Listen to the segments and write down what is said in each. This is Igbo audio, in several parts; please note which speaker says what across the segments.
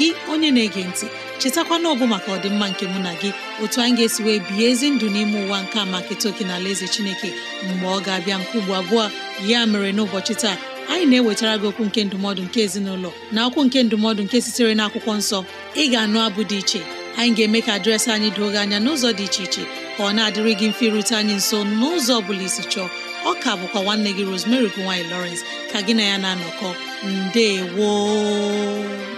Speaker 1: gị onye na-ege ntị chetakwana ọbụ maka ọdịmma nke mụ na gị otu anyị ga-esi wee bihe ezi ndụ n'ime ụwa nke a maka etoke na ala eze chineke mgbe ọ ga-abịa nke ugbo abụọ ya mere n'ụbọchị taa anyị na-ewetara gị okwu nke ndụmọdụ nke ezinụlọ na akwụkwu nke ndụmọdụ nke sitere na akwụkwọ nsọ ị ga-anụ abụ dị iche anyị ga-eme ka dịrasị anyị doo gị anya n'ụzọ dị iche iche ka ọ na-adịrị gị mfe irute anyị nso n'ụzọ ọ bụla isi chọọ ọ ka bụkwa nwanne gị Rosemary gowany Lawrence ka gị na ya na-anọkọ woo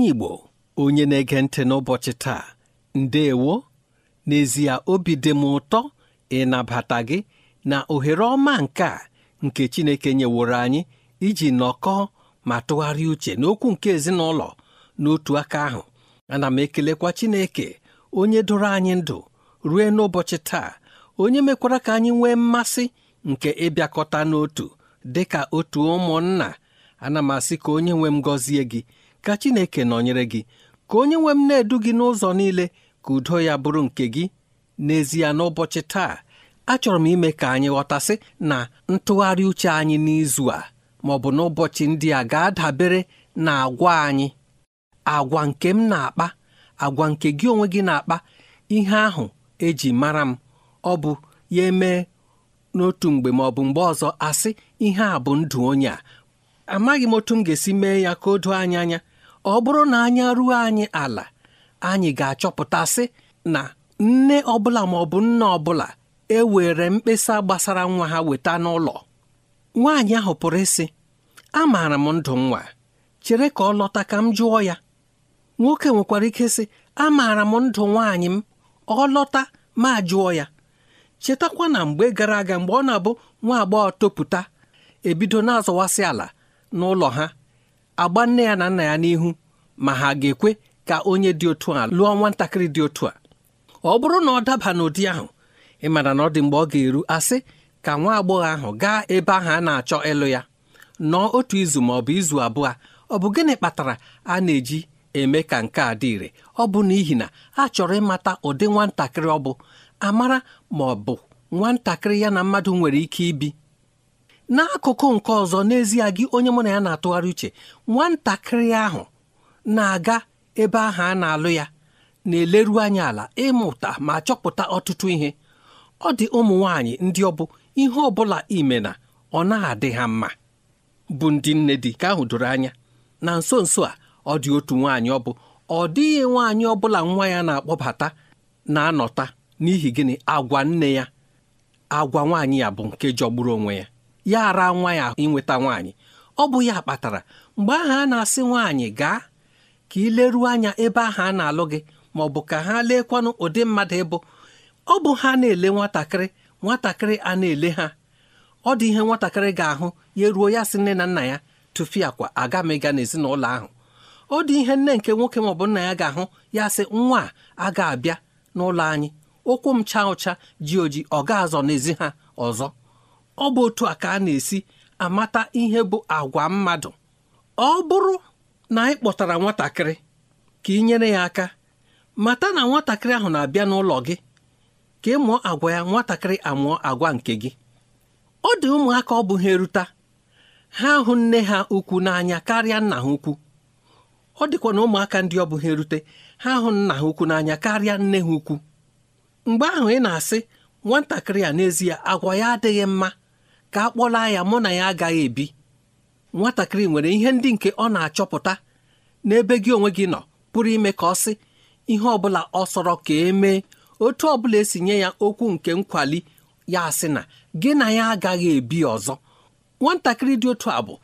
Speaker 2: onye Igbo onye na-ege ntị n'ụbọchị taa ndeewo n'ezie obi dị m ụtọ ịnabata gị na ohere ọma nke a nke Chineke nyeworo anyị iji nọkọọ ma tụgharịa uche n'okwu nke ezinụlọ n'otu aka ahụ ana m ekelekwa Chineke onye doro anyị ndụ rue n'ụbọchị taa onye mekwara ka anyị nwee mmasị nke ịbịakọta n'otu dị ka otu ụmụnna ana m asị ka onye nwe m gọzie gị ka Chineke nọnyere gị ka onye nwe m na-edu gị n'ụzọ niile ka udo ya bụrụ nke gị n'ezie n'ụbọchị taa achọrọ m ime ka anyị ghọtasị na ntụgharị uche anyị n'izu a ma ọ bụ n'ụbọchị ndị a ga-adabere na agwa anyị agwa nke m na-akpa agwa nke gị onwe gị na-akpa ihe ahụ eji mara m ọ bụ ya emee n'otu mgbe ma ọ bụ mgbe ọzọ asị ihe a bụ ndụ onye a amaghị m otu m ga-esi mee ya ka o doo anya anya ọ bụrụ na anya ruo anyị ala anyị ga-achọpụtasị na nne ọbụla ma ọ bụ nna ọbụla ewere mkpesa gbasara nwa ha weta n'ụlọ nwaanyị ahụ pụrụ ịsị amaara m ndụ nwa chere ka ọ lọta ka m jụọ ya nwoke nwekwara ike sị amaara m ndụ nwaanyị m ọ lọta ma jụọ ya chetakwa na mgbe gara aga mgbe ọ na-abụ nwa agbọghọ topụta ebido na-azọwasị ala n'ụlọ ha agba nne ya na nna ya n'ihu ma ha ga-ekwe ka onye dị otu a lụọ nwatakịrị dị otu a ọ bụrụ na ọ daba n'ụdị ahụ ị mara na ọ dị mgbe ọ ga-eru asị ka nwa agbọghọ ahụ gaa ebe ahụ a na-achọ ịlụ ya nọọ otu izu ma ọ bụ izu abụọ ọ bụ gịnị kpatara a na-eji eme ka nke a dị ire ọ bụ n'ihi na a chọrọ ịmata ụdị nwatakịrị ọ bụ amara ma ọ bụ nwatakịrị ya na mmadụ nwere ike ibi n'akụkụ nke ọzọ n'ezie gị onye mụ na ya na-atụgharị uche nwatakịrị ahụ na-aga ebe ahụ a na-alụ ya na-eleru anya ala ịmụta ma chọpụta ọtụtụ ihe ọ dị ụmụ nwaanyị ndị ọ bụ ihe ọ bụla ime na ọ na-adị ha mma bụ ndị nne dị ka ahụ doro anya na nso nso a ọ dị otu nwaanyị ọ bụ ọ dịghị nwaanyị ọ bụla nwa ya na-akpọbata na-anọta n'ihi gịnị agwa nne ya agwa nwaanyị ya bụ nke jọgburu onwe ya ya ara nwa ya inweta nwaanyị ọ bụ ya kpatara mgbe ahụ a na-asị nwaanyị gaa ka ị leruo anya ebe ahụ a na-alụ gị ma ọ bụ ka ha leekwanụ ụdị mmadụ ịbụ ọ bụ ha na-ele nwatakịrị nwatakịrị a na-ele ha ọ dị ihe nwatakịrị ga-ahụ ya ruo ya sị nne na nna ya tụfịa kwa aga m ịga n'ezinụlọ ahụ ọ dị ihe nne nke nwoke maọbụ nna ya ga-ahụ ya sị nwa a ga-abịa n'ụlọ anyị ụkwụ m chaa ụcha ji oji ọ ga-azọ n'ezi ha ọzọ ọ bụ otu a ka a na-esi amata ihe bụ agwa mmadụ ọ bụrụ na anyị kpọtara nwatakịrị ka ị nyere ya aka mata na nwatakịrị ahụ na-abịa n'ụlọ gị ka ị mụọ agwa ya nwatakịrị amụọ agwa nke gị ọ dị ụmụaka ọ bụ ha eruta ha hụ nne ha ukwu n'anya karịa nna ha ukwu ọ dịkwa na ụmụaka ndị ọ bụ erute ha hụ nna ha ukwu n'anya karịa nne ha ukwu mgbe ahụ ị na-asị nwatakịrị a n'ezie agwa ya adịghị mma ka a ya mụ na ya agaghị ebi nwatakịrị nwere ihe ndị nke ọ na-achọpụta n'ebe gị onwe gị nọ pụrụ ime ka ọ sị ihe ọ bụla ọ sọrọ ka emee otu ọ bụla esi nye ya okwu nke nkwali ya asị na gị na ya agaghị ebi ọzọ nwatakịrị dị otu a bụ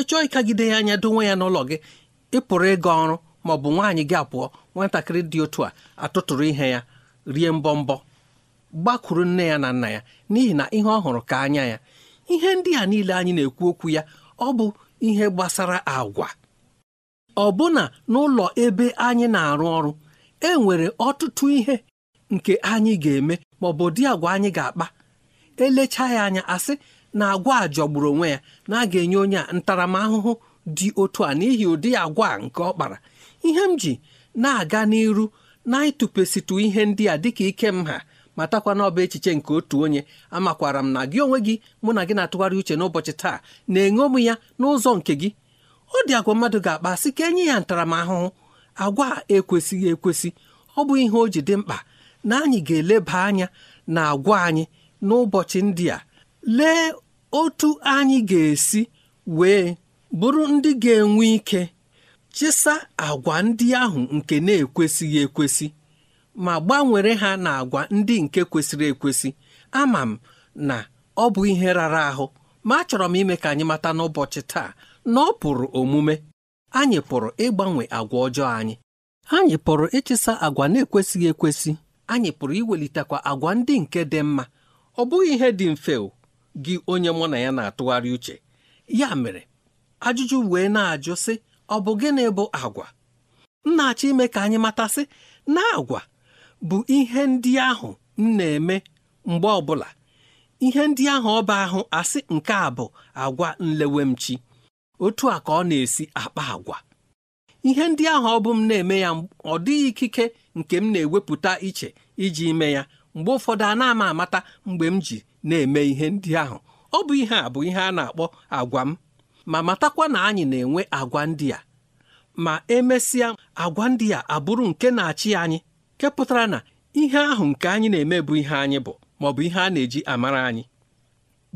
Speaker 2: ịchọọ ịkagide ya anya donwe ya n'ụlọ gị ịpụrụ ịga ọrụ ma ọ bụ nwaanyị gị apụọ nwatakịrị dị otu a atụtụrụ ihe ya rie mbọ mbọ gbakwuru nne ya na nna ya n'ihi na ihe ọ hụrụ ka anya ya ihe ndị a niile anyị na-ekwu okwu ya ọ bụ ihe gbasara agwa ọbụna n'ụlọ ebe anyị na-arụ ọrụ e nwere ọtụtụ ihe nke anyị ga-eme ma ọ bụ dị agwa anyị ga-akpa elecha ya anya asị na agwa a jọgburu onwe ya na a ga-enye onye a ntaramahụhụ dị otu a n'ihi ụdị agwa nke ọ kpara ihe m ji na-aga n'iru na ihe ndị a dịka ike m matakwa na ọba echiche nke otu onye amakwara m na gị onwe gị mụ na gị na-atụgharị uche n'ụbọchị taa na-eṅomi ya n'ụzọ nke gị ọ dị agwa mmadụ ga-akpa sị ka enye ya ntaramahụhụ agwa ekwesịghị ekwesị ọ bụ ihe o ji dị mkpa na anyị ga-eleba anya na agwa anyị n'ụbọchị ndị a lee otu anyị ga-esi wee bụrụ ndị ga-enwe ike chịsa agwa ndị ahụ nke na-ekwesịghị ekwesị ma gbanwere ha na agwa ndị nke kwesịrị ekwesị ama m na ọ bụ ihe rara ahụ ma achọrọ m ime ka anyị mata n'ụbọchị taa na ọ pụrụ omume anyị pụrụ ịgbanwe agwa ọjọọ anyị anyị pụrụ ịchịsa agwa na-ekwesịghị ekwesị anyị pụrụ iwelitekwa agwa ndị nke dị mma ọ bụghị ihe dị mfe o gị onye mụ na ya na-atụgharị uche ya mere ajụjụ wee na-ajụ sị ọ bụ gịnị bụ agwa m na-achọ ime ka anyị matasị na agwa bụ ihe ndị ahụ m na-eme mgbe ọbụla ihe ndị ahụ ọba ahụ asị nke a bụ agwa nlewemchi otu a ka ọ na-esi akpa agwa ihe ndị ahụ ọ bụ m na-eme ya ọ dịghị ikike nke m na-ewepụta iche iji ime ya mgbe ụfọdụ a na-ama amata mgbe m ji na-eme ihe ndị ahụ ọ bụ ihe a bụ ihe a na-akpọ agwa m ma matakwa na anyị na-enwe agwa ndị a ma emesịa agwa ndị a abụrụ nke na-achị anyị nke pụtara na ihe ahụ nke anyị na-eme bụ ihe anyị bụ maọbụ ihe a na-eji amara anyị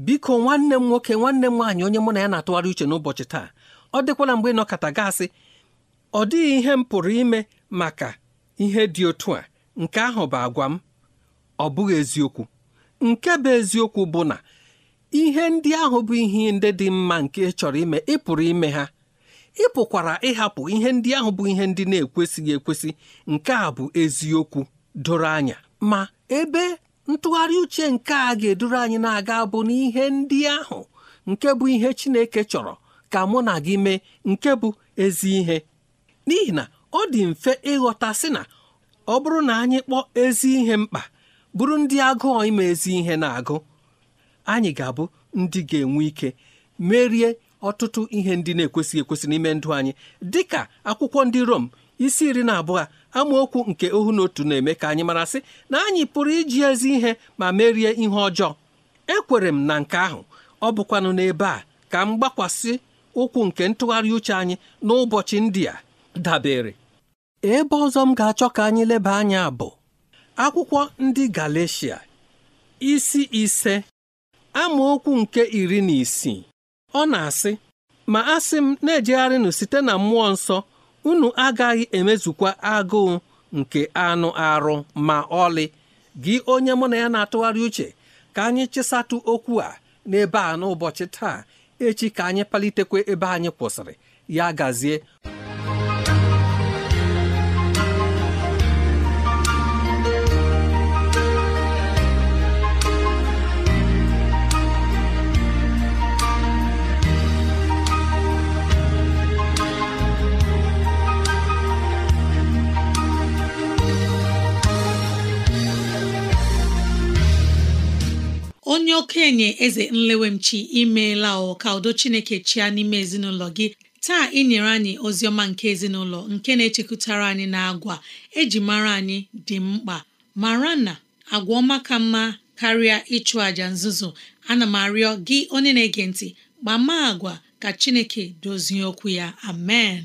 Speaker 2: biko nwanne m nwoke nwanne m nwaanyị onye mụ na ya na-atụgharị uche n'ụbọchị taa ọ dịkwala mgbe ị nọkọta gasị ọ dịghị ihe m pụrụ ime maka ihe dị otu a nke ahụ bụ agwa m ọ bụghị eziokwu nke bụ eziokwu bụ na ihe ndị ahụ bụ ihe ndị dị mma nke ị chọrọ ime ị pụrụ ime ha ị pụkwara ịhapụ ihe ndị ahụ bụ ihe ndị na-ekwesịghị ekwesị nke a bụ eziokwu doro anya ma ebe ntụgharị uche nke a ga edoro anyị na-aga bụ n'ihe ndị ahụ nke bụ ihe Chineke chọrọ ka mụ na gị mee nke bụ ezi ihe n'ihi na ọ dị mfe ịghọta sị na ọ bụrụ na anyị kpọọ ezi ihe mkpa bụrụ ndị agụọ ime ezi ihe na-agụ anyị ga-abụ ndị ga-enwe ike merie ọtụtụ ihe ndị na-ekwesịghị ekwesị n'ime ndụ anyị dịka akwụkwọ ndị Rom isi iri na abụọ amaokwu nke ohu na otu na-eme ka anyị mara marasị na anyị pụrụ iji ezi ihe ma merie ihe ọjọọ ekwere m na nke ahụ ọ bụkwanụ n'ebe a ka m gbakwasị ụkwụ nke ntụgharị uche anyị n'ụbọchị ndị a dabere ebe ọzọ m ga-achọ ka anyị leba anya bụ akwụkwọ ndị Galeshia isi ise amaokwu nke iri na isii ọ na-asị ma asị m na-ejegharịnụ site na mmụọ nsọ unu agaghị emezukwa agụụ nke anụ arụ ma ọlị gị onye mụ na ya na-atụgharị uche ka anyị chịsatụ okwu a n'ebe a n'ụbọchị taa echi ka anyị palitekwa ebe anyị kwụsịrị ya gazie
Speaker 1: onye okenye eze nlewemchi imeela ọ ka udo chineke chia n'ime ezinụlọ gị taa ị nyere anyị ozi ọma nke ezinụlọ nke na-echekwutara anyị na agwa eji mara anyị dị mkpa mara na agwa ọma ka mma karịa ịchụ àjà nzuzo ana m arịọ gị onye na-ege ntị gbama agwa ka chineke dozie okwu ya amen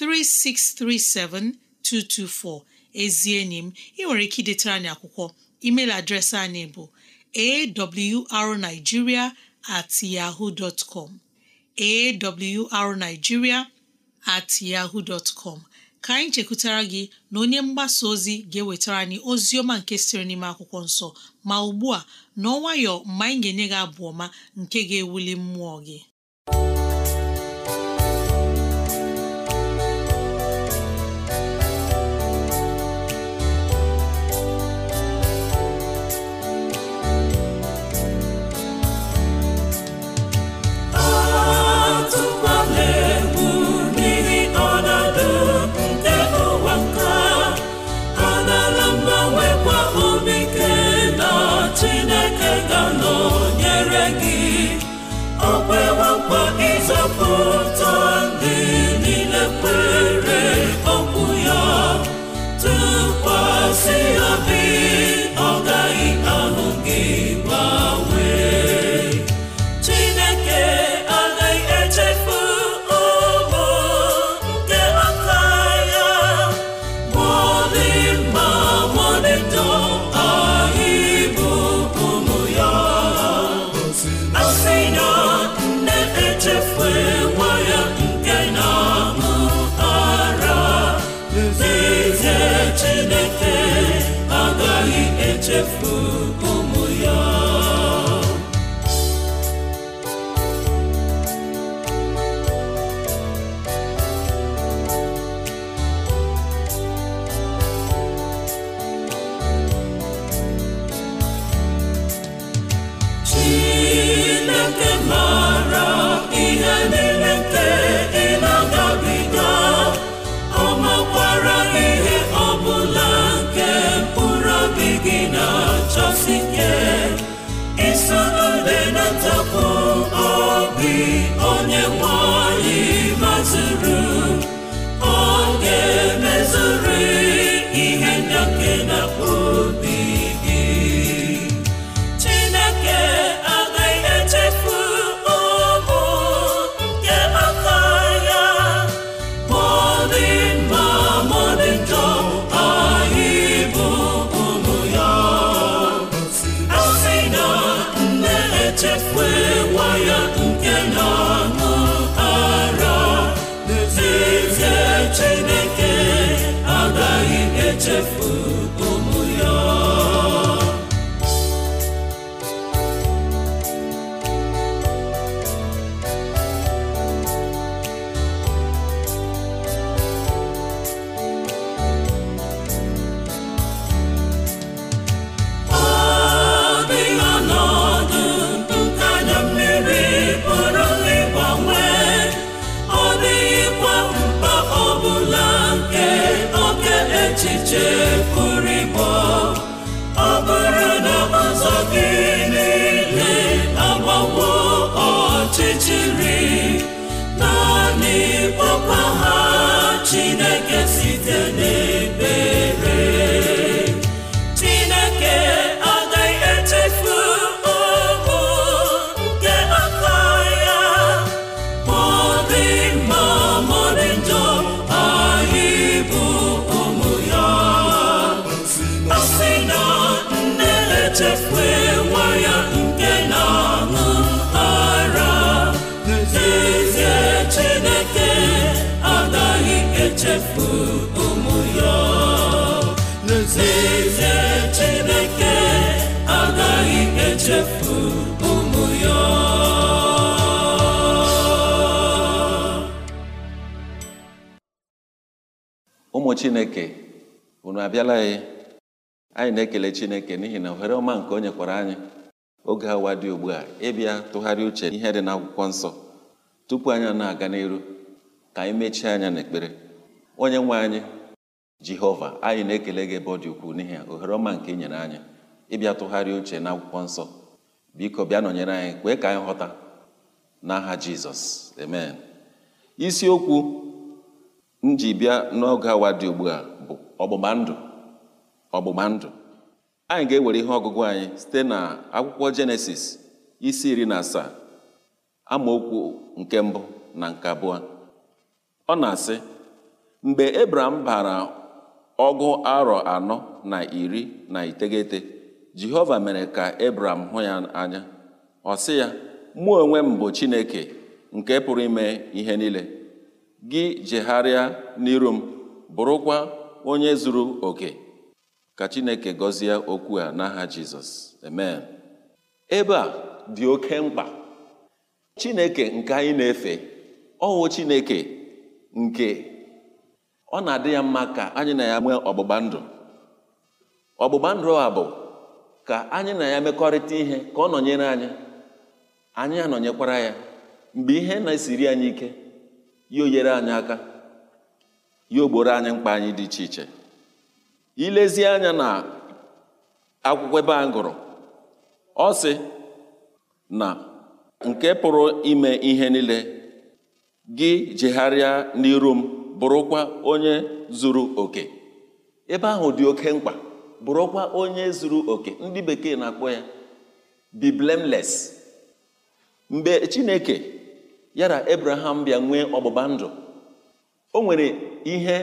Speaker 1: 3637224 ezi enyi m ị nwere ike idetara anyị akwụkwọ email adreesị anyị bụ arigiria at yaho arigiria at yahoo dot ka anyị chekwutara gị na onye mgbasa ozi ga-ewetara anyị ozi ọma nke sịrị n'ime akwụkwọ nsọ ma ugbu a n'ọnwayọ mgbe anyị ga-enye gị abụ ọma nke ga-ewuli mmụọ gị
Speaker 3: onye nwanyị anyị ụmụ ya n'ezie Chineke agaghị
Speaker 4: echefu ụmụ ya
Speaker 5: ụmụ Chineke unu abịala ya anyị na-ekele Chineke n'ihi na ohere ọma nke o nyekwara anyị oge awa dị ugbu a ịbịa tụgharị uche ihe dị n'akwụkwọ nsọ tupu anyị na-aga n'iru ka anyị mechie anya n'ekpere onye nwe anyị jehova anyị na-ekele gị ebe ọ dị ukwuu n'ihi ya ohere ọma nke nyere anyị ịbịa tụgharịa uche na akwụkwọ nsọ biko bịa nọnyere anyị kwee ka anyị ghọta n'aha jizọs amen isiokwu m ji bịa n'oge awa dị ugbu a bụ ọgbụgba ndụ ọgbụgba ndụ anyị ga-ewere ihe ọgụgụ anyị site na akwụkwọ jenesis isi iri na asaa amaokwu nke mbụ na nke abụọ ọ na-asị mgbe ebram bara ọgụ arọ anọ na iri na iteghete jehova mere ka ebram hụ ya anya ọ sị ya mụ onwe m bụ chineke nke pụrụ ime ihe niile gị jegharịa n'iru m bụrụkwa onye zuru oke ka chineke gọzie okwu a n'aha jizọs amen ebe a dị oke mkpa chineke nke anyị na-efe ọwụ chineke nke ọ na-adị ya mma ka anyị na ya nwee ọgbụgba ndụ ọgbụgba ndụ a bụ ka anyị na ya mekọrịta ihe ka ọ nọnyere anyị anyị anọnyekwara ya mgbe ihe na-esiri anyị ike ya oyere anyị aka ya ogboro anyị mkpa anyị dị iche iche ilezi anya na akwụkwọ ebe a gụrụ ọ sị na nke pụrụ ime ihe niile gị jegharịa n'iru m bụrụkwa onye zuru oke ebe ahụ dị oke mkpa bụrụkwa onye zuru oke ndị bekee na-akpọ ya be mgbe chineke yara abraham bịa nwee ọgbụgba ndụ o nwere ihe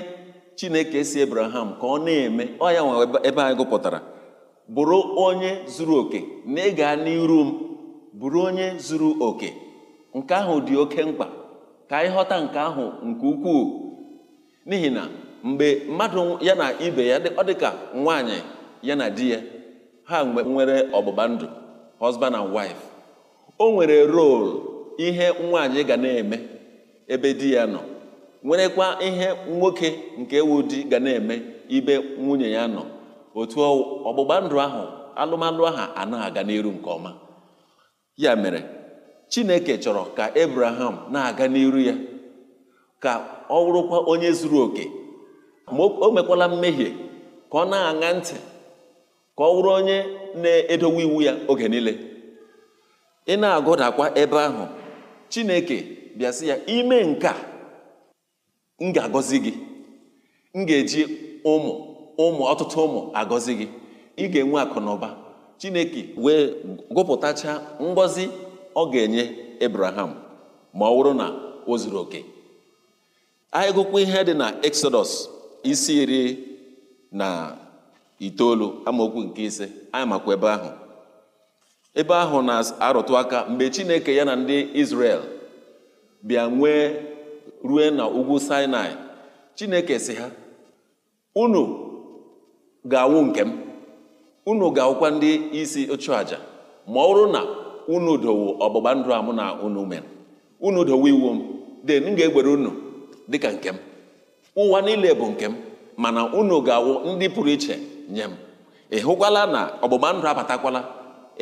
Speaker 5: chineke si abraham ka ọ na-eme ọ ya nwa ebe anyị gụpụtara bụrụ onye zuru oke na ịga n'iru m bụrụ onye zuru oke nke ahụ dị oke mkpa ka anyị ghọta nke ahụ nke ukwuu n'ihi na mgbe mmadụ ya na ibe ya ọ dị ka nwaanyị ya na di ya ha nwere ọgbụgba ndụ husband and wife o nwere rol ihe nwaanyị ga na-eme ebe di ya nọ nwerekwa ihe nwoke nke ewu di ga na-eme ibe nwunye ya nọ otu ọgbụgba ndụ ahụ alụmalụ ahụ a na-aga n'iru nke ọma ya mere Chineke chọrọ ka Abraham na-aga n'iru ya ka ọ wụrụkwa onye zuru oke ma o mekwala mmehie ka ọ na-aṅa ntị ka ọ wụrụ onye na-edowe iwu ya oge niile ị na-agụdakwa ebe ahụ chineke bịa ya ime nka m ga-agọzi gị m ga-eji ụmụ ụmụ ọtụtụ ụmụ agọzi gị ị ga-enwe akụ chineke wee gụpụtacha ngọzi ọ ga-enye ebraham ma ọ bụrụ na o zuru oke anyị gụkwa ihe dị na exodus isi iri na itoolu amaokwu nke ise anyị makwa ebe ahụ ebe ahụ na-arụtụ aka mgbe chineke ya na ndị israel bịa nwee rue na ugwu sinai chineke si ha unu ga-awụ nke m unu ga-awụkwa ndị isi ọchụaja ma ọ na unu dowo ọgbụgba ndụ a mụ na unu mere unu dowo iwu m den m ga-egbere unu dịka nke m ụwa niile bụ nke m mana unu ga-awụ ndị pụrụ iche nye m ị hụkwala na ọgbụgba ndụ abatakwala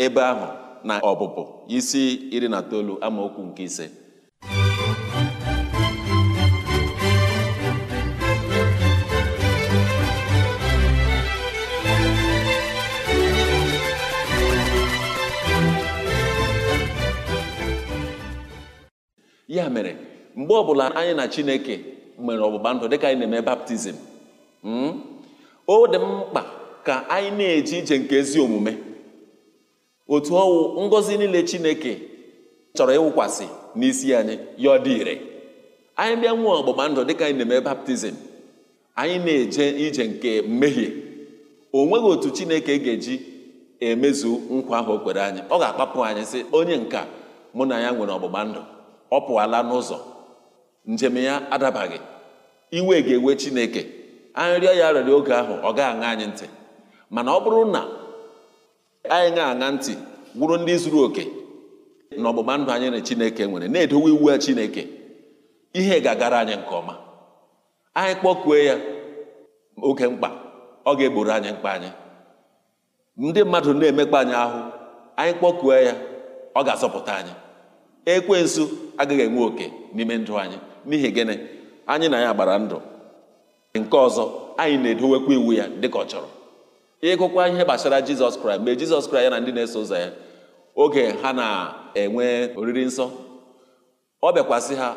Speaker 5: ebe ahụ na ọbụbụ isi iri na itoolu amaokwu nke ise ya mere mgbe ọbụla anyị na chineke nwere ọgbụgba ndụ dịka anyị na-eme baptizim hmm, o dị mkpa ka anyị na-eje ije nke ezi omume otu ọnwụ ngọzi niile chineke chọrọ ịwụkwasị n'isi anyị ya ọ dị ire anyị bịa nwee ọgbụgba ndụ dịka anyị na-eme baptizim anyị na-eje ije nke mmehie o nweghị otu chineke ga-eji emezu nkwa ahụ o kwere anyị ọ ga-akpapụ anyị sị onye nka mụ na ya nwere ọgbụgba ndụ ọ pụọla n'ụzọ njem ya adabaghị iwe ga-ewe chineke anyị rịọ ya rịọrọ oge ahụ ọ gaghị aṅa anyị ntị mana ọ bụrụ na anyị na-aṅa ntị wụrụ ndị zuru oke na ọgbụgba ndụ anyị na chineke nwere na-edowe iwu ya chineke ihe ga-agara anyị nke ọma anyị kpọkue ya oge mkpa ọ ga-egboro anyị mkpa anyị ndị mmadụ na-emekpa anyị ahụ anyị kpọkue ya ọ ga-azọpụta anyị ekwensu agaghị enwe oke n'ime ndụ anyị n'ihi gịnị anyị na ya gbara ndụ nke ọzọ anyị na-edowekwa iwu ya dịka ọ chọrọ ịgụkwa ihe gbasara jizọs kraịst mgbe jizọs kraịst ya na ndị na-eso ụzọ ya oge ha na-enwe oriri nsọ ọ bịakwasị ha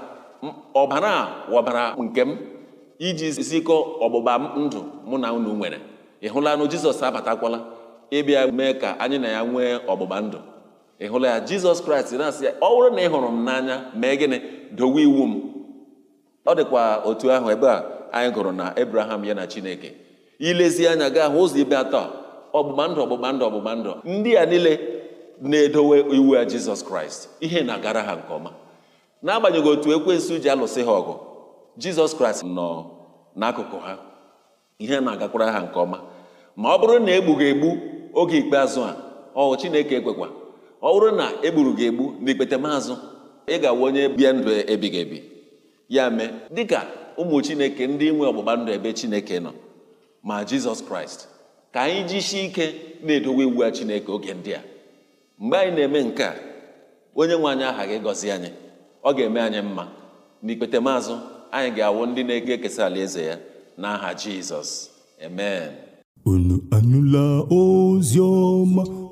Speaker 5: ọbara ọbara nke m iji zikọ ọgbụgba ndụ mụ na unu nwere ị hụla na jizọs abatakwala ịbịa mee ka anyị na ya nwee ọgbụgba ndụ ị hụla ya jizọs kraịst na-asị ya ọ bụrụ na ị hụrụ m n'anya mee gịnị dowe iwu m ọ dịkwa otu ahụ ebe a anyị gụrụ na abraham ya na chineke ilezi anya gaa hụ ụzọ ibe atọ ọgbụgba ndụ ọgbụgba ndụ ọgbụgba ndụ ndị a niile na-edowe iwu ya jizọs kraịst ihe na-agara ha nke ọma n'agbanyeghị otu ekwensu ji alụsị ha ọgụ jizọs kraịst nọ n'akụkụ ha ihe na-agakwara ha nke ọma ma ọ bụrụ na egbughị egbu oge ikpeazụ a ọ chineke ekwekwa ọ bụrụ na egburu gị egbu n'ikpete maazụ ị ga-awa onye bie ndụ ebighị ebi ya mee dịka ụmụ chineke ndị nwe ọgbụgba ndụ ebe chineke nọ ma jizọs kraịst ka anyị jisie ike na-edowe iwu ya chineke oge ndị a mgbe anyị na-eme nke a onye nwe anyị aha gị gọzi anyị ọ ga-eme anyị mma n'ikpete maazụ anyị ga-awụ ndị na-ege ekesa alaeze ya n'aha jizọs
Speaker 3: amen unu anụla ozi ọma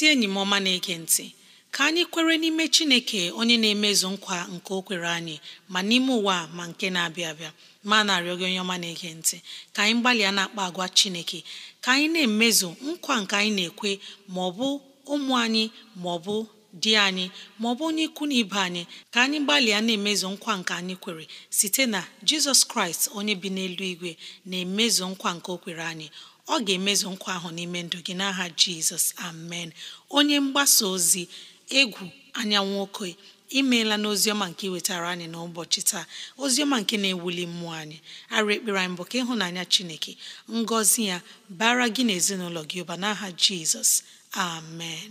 Speaker 1: ezi enyi m ọma na-ege ntị ka anyị kwere n'ime chineke onye na-emezu nkwa nke o kwere anyị ma n'ime ụwa ma nke na-abịa abịa ma na-arịọ gị onye ọma na-ege ntị ka anyị gbalịa na-akpa agwa chineke ka anyị na-emezu nkwa nke anyị na-ekwe ma ọ bụ ụmụ anyị ma ọ bụ di anyị ma ọ bụ onye ikwu na ibe anyị ka anyị gbalịa na-emezu nkwa nke anyị kwere site na jizọs kraịst onye bi n'elu igwe na-emezu nkwa nke o kwere anyị ọ ga-emezu nkwa ahụ n'ime ndụ gị n'aha jizọs amen onye mgbasa ozi egwu anyanwụ okoye imeela n'oziọma nke iwetara anyị n'ụbọchị taa oziọma nke na-ewuli mmụọ anyị arụ ekpere anyị bụ ka ịhụnanya chineke ngọzi ya bara gị na ezinụlọ gị ụba n'aha jizọs amen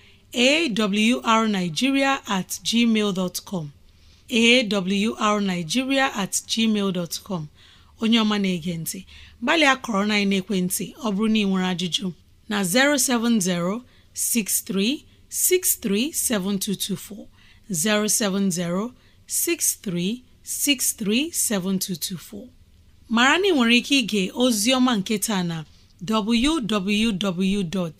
Speaker 1: arigiria atgmal com arigiria atgmal com onye ọma na-ege ntị gbalịa kọrọ na ekwentị ọ bụrụ na ị nwere ajụjụ na 070 7224. 070-6363-7224 mara na ị nwere ike ịga ozi ọma nketa na www.